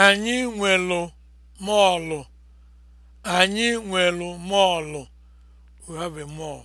Anyị nwelu mọọlụ. Anyị nwelu mọọlụ. We have a mall.